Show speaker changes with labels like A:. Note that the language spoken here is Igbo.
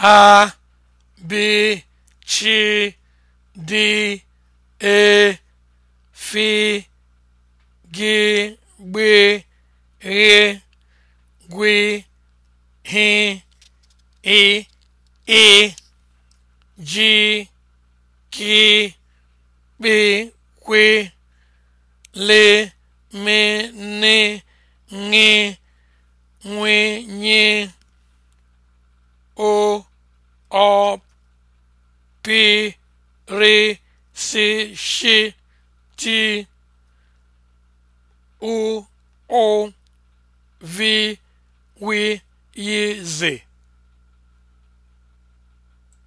A: a b chi d e gị gbe ghe gwi hi i i ji ki kpi kwi ni ọpịrịsịshịtị ụụvịwịyịzị